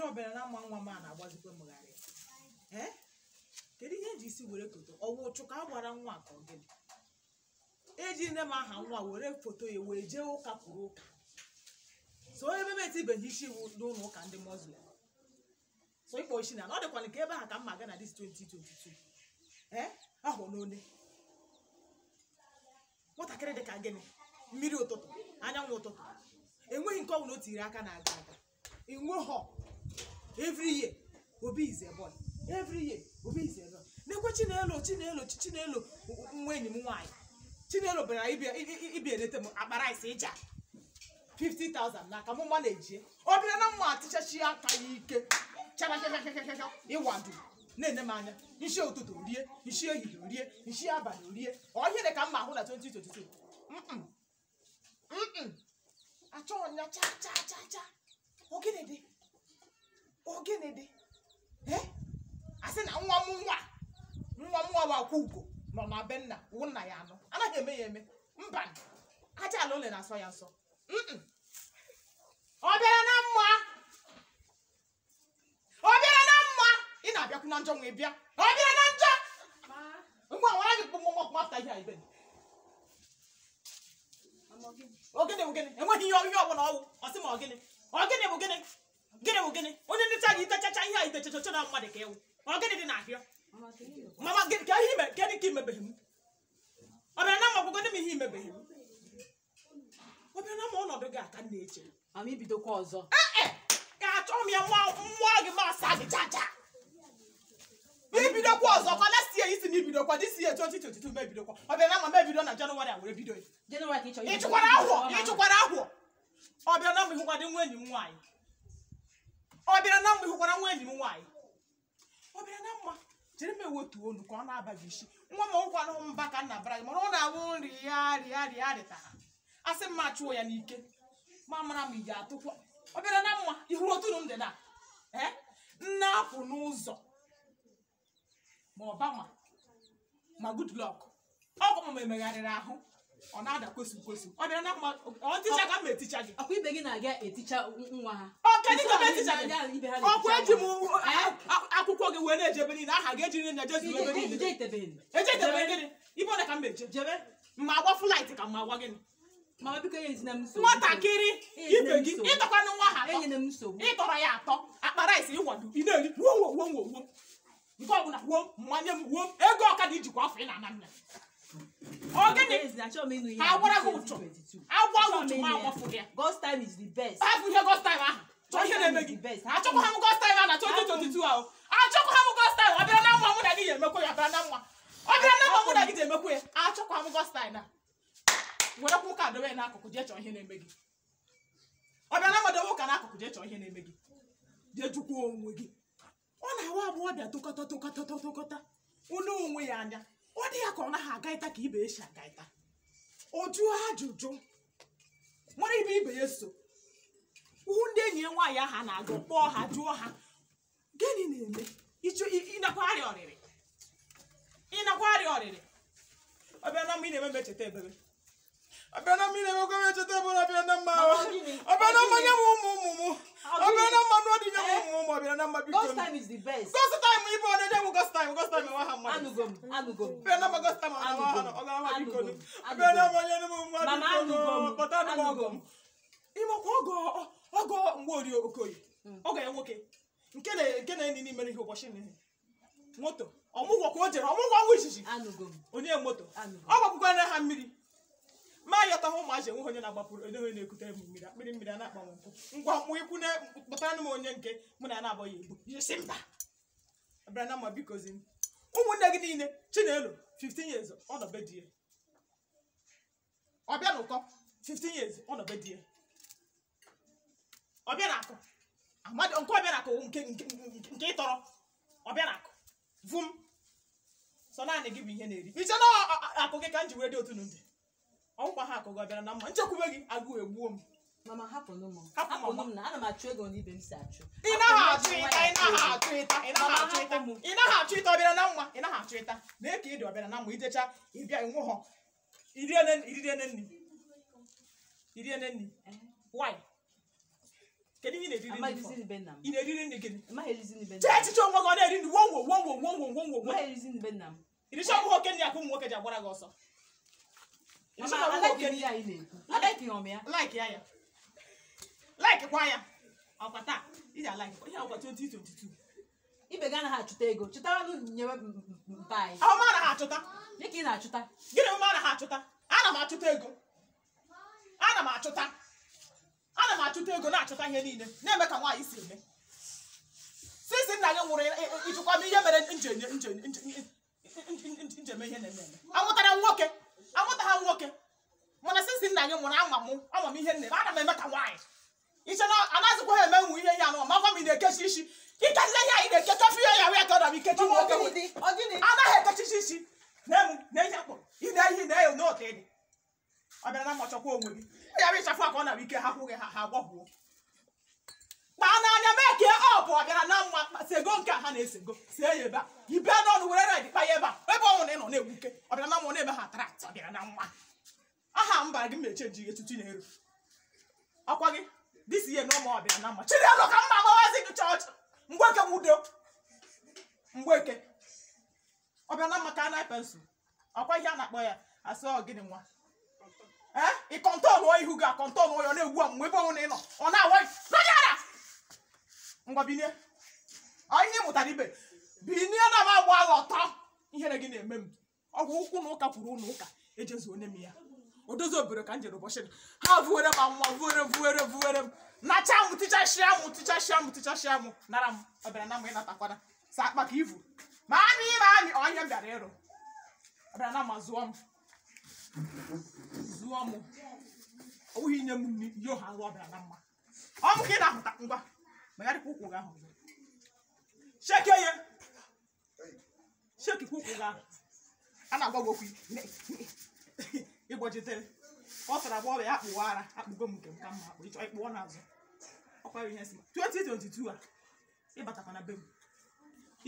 ọbịa ọbịa na ama nwa m a na-agbazikwa mmegharị kedu ihe ji isi were foto ọwụ ụchụ ka a gwara nwa ka ọ gịnị eji nne m aha nwa were foto ya wee jee ụka kwuru ụka so ebe m etibeghị isi iwu n'ụlọ ụka ndị muslim so ịkpọ isi na ọ dịkwala ka ebe ha ka mma ga na dis 2022 ee ahụ n'one nwatakịrị dị ka gịnị mmiri ụtụtụ anyanwụ ụtụtụ enweghị nke ọbụla o tiri aka na-aga aga inweghọ every year obi is a boy every year obi is a girl nekwe chinelo chinelo chinelo nwa enyi m nwaanyị chinelo bịara ịbịa eleta m akpara isi ịja 50,000 n'aka mụ mma ejie ọ bịara na mma atịchachi aka ya ike ịwado na-enye m anya nshi ụtụtụ rie nshi ehihie rie nshi abalị rie ọhịa dị ka mma ahụ na 2022 achọghị ya cha cha cha cha ogene dị gịnị dị asị na nwa m nwa nwa m nwa bụ akwa ugo nọ na be nna nna ya anọ anaghị eme ya eme mba aja ala ole na-asọ ya nsọ ọ bịara na mma ọ bịara na mma ị na-abịakwu na njọ nwee bịa ọ bịara na njọ ngwa nwara gị kpụmụ nwa kpụmafta ihe a ibe ogene bụ gịnị enweghị ihe ihe ọ bụla ọwụ ọ sị ma ọ gịnị ọ gịnị bụ gịnị gịnị bụ gịnị onye ntecha gị itechacha ihe a itechacha na mmadụ ka ewu ọ gịnị dị n'ahịa mama ka ihe gịnị ka imebeghị m ọ bịara na ọgwụgwọ dị m ihe imebeghị ọ na ọnọdụ gị aka na-eche ibidokwa ọzọ ee achọghị m ya mmụọ gị gị chacha ibidokwa ọzọ kwa last year isi na ibidokwa this year 2022 mebidokwa ọ bịara na eh, eh! ma na jenụwarị e a were bido na nwa enyi m nwaanyị ọ bịara na mma ịhụkwara nwa enyi m nwaanyị ọ bịara na mma chere m ewetu olu ka ọ na abaghị isi nwa m ọgwụkwanụ mba ka nna bara gị mana ọ na-awụ nri ya rịa rịa rịta ha a sị mma chụọ ya n'ike ma mara ị ga atụkwa ọ bịara na mma ihu otunu m dị na ee nna apụ n'ụzọ ma ọbama ma good luck ọgwụ m emegharịrị ahụ ọ na-ada kwesu kwesị ọ dị na mma ọ ticha ka m eticha gị ọkwa ibe gị na-aga eticha nwa ha ọ kedụ ka ọkwa eji m akwụkwọ gị wee na-eje ebe niile aha gị eji nri na jezu ebe niile eje itebe gịnị ibe ọda ka m eje jebe mma agwa flaịt ka mma agwa gịnị e nwatakịrị e ibe gị ịtọkwanụ nwa ha e ịtọrọ ya atọ akpara isi ịwado ị na-eri wuo wuo wuo wuo nke ọbụla wuo mmanya m wuo ego ọkada ijikwa afọ ị na-ana nna Ogini agwara gị ụtụ agwa gị ma agwafụ gị God's time is the best. Hapụ ihe God's time ahụ chọọ ihe na-eme gị achọkwa ha m God's time ahụ na 2022 ahụ achọkwa ha m God's time ọ bịara na mma mụ na gị ga-emekwa ya bịara na mma ọ bịara na mma mụ na gị ga-emekwa ya achọkwa ha m God's time na werekwa ụka dobe ya n'akụkụ jee chọọ ihe na-eme gị ọ bịara na mma dobe ụka n'akụkụ jee chọọ ihe na-eme gị jee jụkwuo onwe gị ọ na-awa agbọghọbịa tokọta tokọta tokọta unu onwe ya anya ọ dị ya aha agaịta ka ibe esi agaita o jụọ ajụjụ nwere ibe ibe eso so hụ ndị enyi ya nwaanyị aha na-agụ kpọọ ha jụọ ha gịnị na-eme ịnakwa arịa ọrịrị ọbịa na mma ị na-eme mecheta ebere abena mine mokomete tebola abena mawa abena manya mumumumu abena manwa dinya eh? mumumumu abena nama bitoni ghost time is the best ghost time ibo ne jamu ghost time ghost time wa hamma anugom anugom abena ma ghost time ana wa hano oga ma bitoni abena manya ne mumumu mama anugom but anugom imo ko ogo ogo ngwori okoyi hmm. oga ya nwoke nke na nke na enyi n'ime ihe ụbọchị n'ihe moto ọmụgwọ ka o jere ọmụgwọ ọnwa izizi onye moto ọ gbakwukwa ha mmiri atahụ ụmụazị enweghị onye na-agbapụrụ onye onye na-ekute mmiri akpịrị mmiri a na-akpanwe mpụ ngwa mkpụ ikwu na kpụtara m onye nke mụ na na-abọghị ibu si mba abịara na mma bikozi ụmụnne gị niile chinelo 15 years ọ nọ di ya ọbịa na 15 years ọ nọ di ya ọbịa na akụ amadị nke ọbịa na akụ nke nke ịtọrọ ọbịa na akụ vum sọ naanị gị bụ ihe na-eri iche na akụ gị ka m ji were dị otu n'ụdị ọgwụkwa ha akụgọ bịara na mma nchekwube gị agụụ egbuo m mama hapụnụ m hapụnụ m na ana m achụ ego n'ibe m si achụ ị naghị achụ ịta ị naghị achụ ịta ị naghị achụ ịta ị naghị achụ ịta ọbịara na mma ị naghị achụ ịta mee ka ị dị ọbịara na mma ịbịa ịnwụ iriene nri nri kedu ihe ị na-eriri nri gịnị chee echiche onwe gị na-eri nri wonwo wonwo wonwo wonwo nri akụ ụmụ nwoke ji gị ọsọ ya ya ya ibe ga anaghị achụta ego chụtara nyewe mpa anyị achụta dịka ị na-achụta gịnị mma anaghị achụta ana m achụta ego ana m achụta ana m achụta ego na-achụta ihe niile na-eme ka nwaanyị si eme sisi nna gị nwụrụ ịchụkwa m ihe mere njeme ihe na-eme eme anwụtara nwoke amụta ha nwoke mana sisi nna anyị mụrụ ama m ama m ihe nne m ana m eme ka nwaanyị iche na anaghịzịkwa ha eme nwu ihe ihe anụ ma gwa m ị na-ekechi isi ikezi ihe anyị na-eke kọfị ya ya ka ọ dara ikechi nwoke anaghị ekechichi isi na ihe akpọ ị na-ehi na eyo n'otu dị ọ bịara na mmachọkwa onwe gị ya bụ ịchafụ aka ọ nara ike ha kwụghị ha ha gbọgbuo kọwara gị na mma sego nke ha na-esego see ya ebe a i bịa n'ọnụ were red kpa ya ebe a ebe ọ nwụrụ ị nọ na-egbuke ọbịa na mma na-eme ha atrat ọbịa na mma aha mba gị mechie ji gị tutu na-eru akwa gị disi ihe n'ụmụ ọbịa na mma chidelo ka mma amawazi gị chọọchị mgbeke nwudo mgbeke ọbịa na mma ka a na-epe nsụ akwa ihe a na-akpọ ya asị ọgịnị nwa ee eh? ị kọntọnụọ ihu gị akọntọnụọ ya na-egbu a mgbe ebe ọ nwụrụ ị ọ na-awa ngwa binie ihe mụtara ibe binie na m agba agha ọtọ ihere gị na-eme m ọgwụ ụkwụ na ụka kwuru ụlọ ụka ejezu onye m ya o dozi obere ka m jere ụbọchị ha vuwere m anwụnwa vuwere vuwere vuwere m nacha m tichashịa m tichashịa m tichashịa m nara m ọbịara na m ịnatakwana sa akpa ka ivu ma amị ịma anyị ọhịa bịara ịrụ ọbịara na ma zụọ m zụọ m owuhi inye m yo ha rụ ọbịara na mma ọ bụ ka ị na-ahụta ngwa megharịkwa ụkwụ gị ahụ shekie ya shekikwa ụkwụ gị ahụ a na-agwa gị okwu ịgbochitere ọ sara agba ọbịa ya akpụwa ara akpụgo m nke m ka mma akpụ ịchọ ịkpụọ n'azụ ọkwara ihe si 2022 a ịbatakwa na be m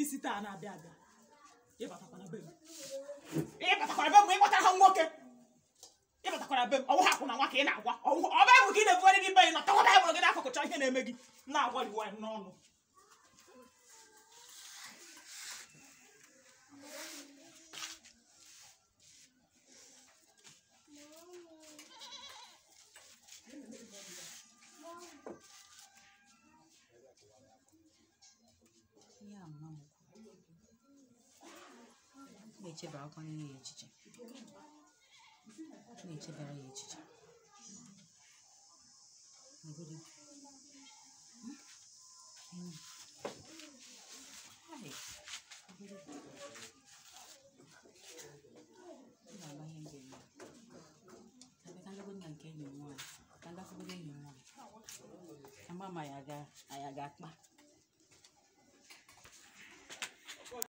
isi taa na-abịa abịa ịbatakwa na be m ịbatakwa na be m ịkpọtara ha nwoke ịbatakwara be m ọnwụ ha kwụna nwa ị na-agwa ọbụ ebụ ka ị na-ebugharị gị be nọta nwa baịbụl gị na ihe na-eme gị na-agwariw anyị n'ọnụ na echiche nature variation. Nagulo. Hmm? Ayun. Ay. Nagulo. Baba yung ganyan. Sabi kang lagun nga mama ay aga, ay aga